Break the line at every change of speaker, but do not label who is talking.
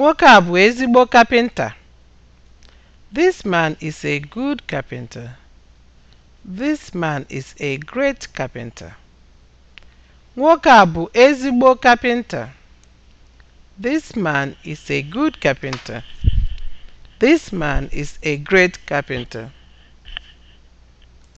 Nwoke a bụ ezigbo kapịnta. This man is a good carpenter. This man is a great carpenter. Nwoke a bụ ezigbo kapịnta. This man is a good carpenter. This man is a great carpenter.